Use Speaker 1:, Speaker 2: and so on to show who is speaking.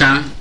Speaker 1: ka